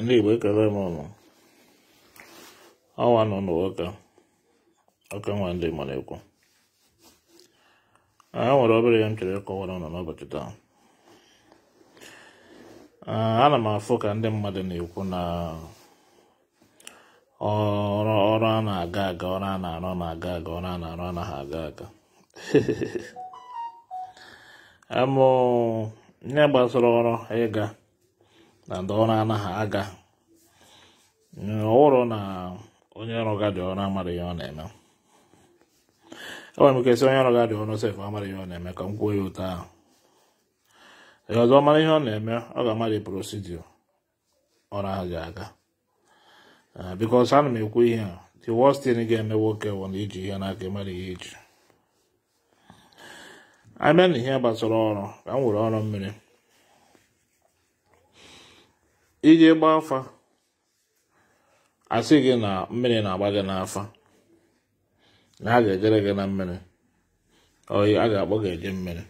ndị igbo ekele m ọnụ ọnwa nọ n'ụka ọka nwa ndị mara ekwu e nwere obere ya m chere ịkọwara ụnụ n'ụbọchị taa ana m afụ ka ndị mmadụ na-ekwu na ọrụ a na-aga aga ọrụ a na-arụ na-aga aga ọrụ a na-arụ anaghị aga aga amụ ihe gbasara ọrụ ịga na ndị ọrụ anaghị aga ọhụrụ na onye ọrụ ga dị ọrụ amaghị ihe ọ na-eme enwere m kesị onye ọrụ ga dị ọrụ sef amaghị ihe ọ na-eme ka m kwuo ya ụtọ ahụ ee ọzọ mara ihe ọ na-eme ọ ga-amadị prosidio ọrụ ahụ ji aga eh, bikos ana m ekwu ihe a the worst thing ga-eme nwoke bụ na iji ihe n'aka ịmara ihe iji abịa na ihe gbasara ọrụ ka m were ọrụ mmiri iji gbaa afa asị gị na mmiri na-agba gị n'afa na a ga-ejere gị na mmiri oyi a ga-akpọ gị eje mmiri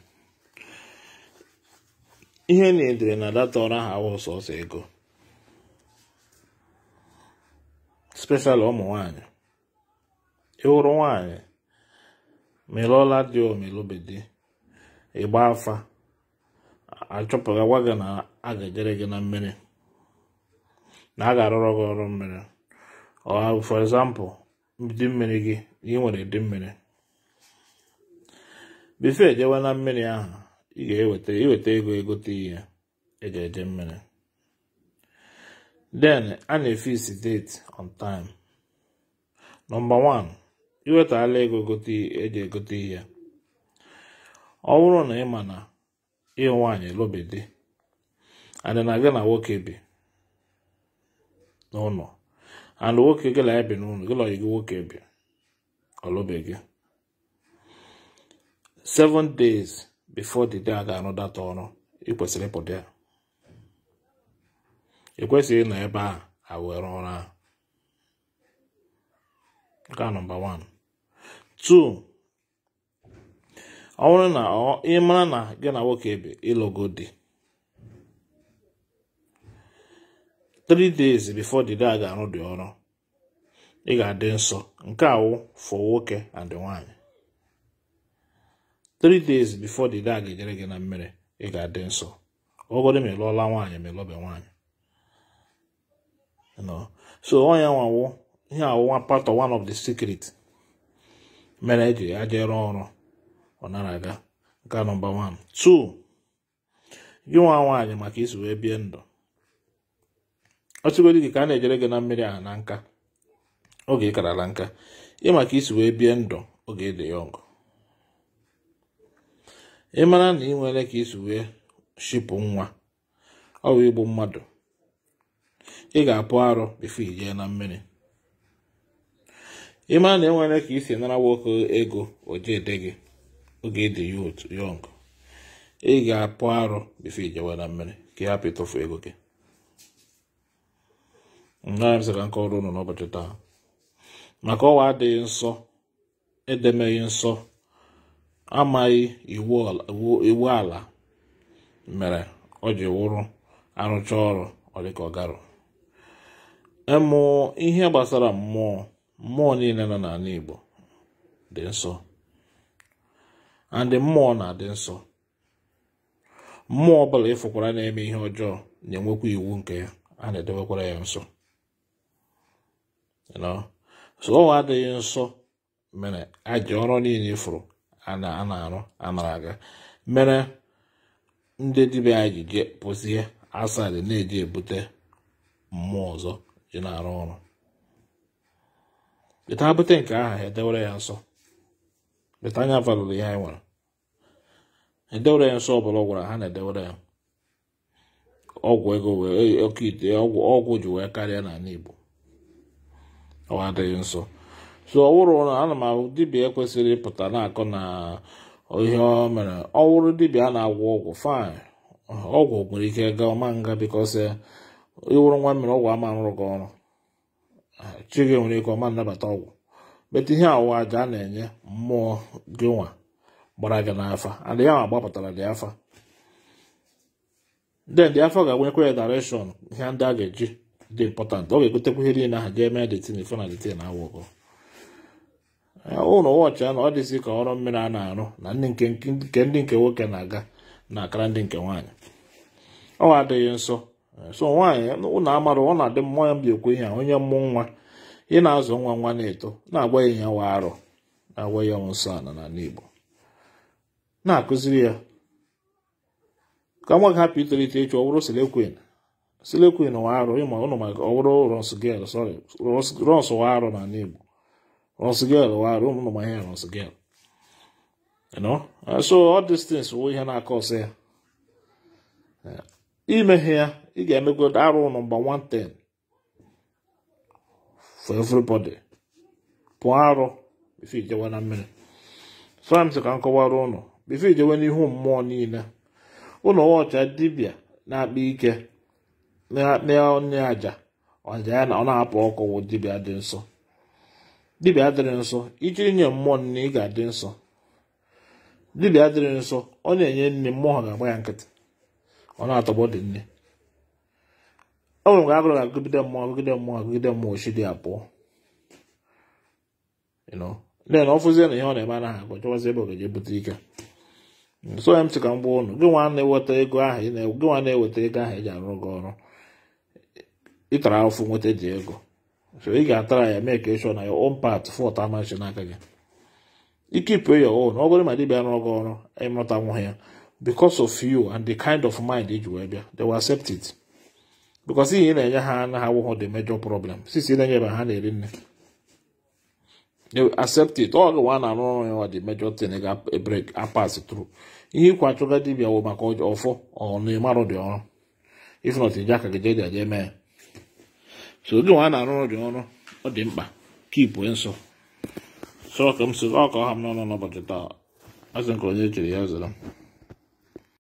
ihe na-edere na data ọrụ ahụ awụ sọsọ ego speshal ụmụ nwanyị ịhụrụ nwanyị melụọla dị omelube ịgba afa achọpụta gwa gị na a ga-ejere gị na mmiri na a ga-arụrụ gị ọrụ mmiri for example dị mmiri gị ị nwere dị mmiri bifo ejewe na mmiri ahụ ị ga-eweta iweta ego egote ihe eji eje mmiri den a na isi date on time nọmba 1 iwetala ego eji egote e ihe ọ bụrụ na ị ma na ị nwaanyị lụbedi adị na gị na nwoke bi n'ụlọ ana nwoke gị na ebi n'ụlọ gị na ọyị gị nwoke bi gị. seven days before the day a ga data ọrụ ị kwesịrị ịpụta ya ekwesịghị ịnọ ebe a awere ọrụ ahụ nke a nọmba 1 2 ọ bụrụ na ị mara na gị na nwoke ebe ịlụgo di three days before the day a ga-arụ dị ọrụ ị ga-adị nsọ nke awụ for nwoke and nwaanyị three days before the day a ga-ejere gị na mmiri ị ga-adị nsọ ọgọdụ ma ịlụọla nwaanyị ma ịlọbe nwaanyị so onye nwawo ihe awụwa part of one of the secret mere eji ajere ọrụ ọ nara aga nke nọmba 1 2 gị nwa nwaanyị maka isi wee bie ndụ ọ ọchịgodi gị ka a na-ejere gị na mmiri ahụ na nka oge ị karala nka ị maka isi wee bie ndụ oge ịdị ya ọgụ ị mara na ị nwere ka isi wee shipụ nwa ọ bụ igbu mmadụ ị ga-apụ arụ bifo ijee na mmiri ị mara na enwere ka isi nara nwoke ego ojeede gị oge ịdị ya otu yọng ị ga-apụ arụ bifo ijewe na mmiri ka ị hapụ ịtụfu ego gị naabịsịra nke ọrụ unu n'ụbọchị taa maka ọnwa adịghị nsọ edemeghị nsọ amaghị iwu ala mere ọ ji wụrụ arụcha ọrụ ọ dị ka ọ garụ ịmụ ihe gbasara mmụọ mmụọ niile nọ n'ala Igbo dị nsọ andị mmụọ na-adị nsọ mmụọ ọ bụla ịfụkwara na-eme ihe ọjọọ na-enwekwa iwu nke ya a na-edebekwara ya nsọ so adịghị nsọ mere aji ọrụ niile ifuru a na-arụ anara aga mere ndị dibịa anyị ji jee pụsị asadị na-eji ebute mmụọ ọzọ ji na-arụ ọrụ peta bute nke aha edewere ya nsọ peta anya valụrụ e nwere edewere ya nsọ ọbụla ọ gwara ha na-edewere ya ọgwụ ego wee e, oke ite ọgwụ ji wee karịa n'ala Igbo ọ adịghị nso so ọwụrụ wụrụ na ana m ahụ dibịa ekwesịrị ịpụta na-akọ na ihe ọ mere ọ wụrụ a na-agwọ ọgwụ fain ọgwụ nwere ike ga ọma nga bikọs eh, ịwụrụ nwa mere ọgwụ ama arụrụ gị ọrụ chi gị nwere ike ọma nnabata ọgwụ metụ ihe awụwa aja a na-enye mmụọ gị nwa gbara gị n'afa adịghị ahụ gbapụtara dị afa den dị afọ ga-agwenyekwa ya dareshọn ihe ndị a ga-eji dị important ọ ga-egotekwa ihe niile ahụ ga-eme detin ife na detin awụkọ ụlọ wọchị ahụ ọ dịzi ka ọrụ mmiri a na-arụ na nke ndị nke nwoke na-aga na-akara ndị nke nwaanyị ọ adịghị nsọ so nwaanyị ụlọ amara ọ na-adị mmụọ ya mbi ekwu ihe a onye mmụ nwa ị na-azụ nwa nwa na-eto na-agwa ya nwa arụ na-agwa ya ọnwụ nsọ ala n'ala Igbo na-akụziri ya ka nwa gị hapụ itolite ịchụ ọ bụrụ selekwen Selokwin wa arụ ịma ụnụ maka ọ bụrụ Rosgel sorry Ros wa arụ na Igbo Rosgel wa arụ ụmụ ma ihe Rosgel so all these things wụ ihe na-akọ ọsọ ya imeghe ya ị ga-emego arụ ụnụ mgba 110 for everybody pụọ arụ bifo ijewe na mmiri framsi ka m kọwara ụnụ bifo ijewe n'ihu mmụọ niile ụnụ ọcha dibia na-akpa ike n'onye aja ọja ya na ọ na-apụ ọkụ wụ dibịa dị nsọ dibịa dịrị nsọ iji nye mmụọ nne ị ga-adị nsọ dibịa dịrị nsọ ọ na-enye nne mmụọ ga-agba ya nkịtị ọ na-atọgbọ dị nne o nwere mgbe agụrụ ga-agụgide mmụọ agụgide mmụọ agụgide mmụọ ochidi abụọ ndị na ọfụzie na ihe ọ na-eme anaghị agụ chọwazi ebe ọ ga-eje bute ike so ya m sị ka m gwa ụnụ gị nwa na-eweta ego ahụ ị na-eweta ego ahụ e ji arụ gị ọrụ ịtara afọ nweta ji ego so ị ga-atara ya mee ka ịchọ na ya on part fọt amachi n'aka gị ike ipụ ya on ọ bụrụ ma dibịa rụọ gị ọrụ ịmụta nwa ya because of you and the kind of mind iji e wee bịa they will accept it because ihe ị na-enye ha anaghị awụghọ the major problem sisi ị na-enye ebe ha na-eri nne they will accept it ọ gụwa na arụ ọrụ ya wa the major thing ga-break e apas through ihe ịkwa achọga dibịa wụ maka ọfọ ọ na-emarụ dị ọrụ if not ije aka gị jee dị aja eme so oge nwa a na-arụ ọrụ ọrụ ọ dị mkpa ipue nsọ sọ ka m si ọ ka ọha m n'ọnụ n'ụbọchị taa azụ nke onye chere ya zara m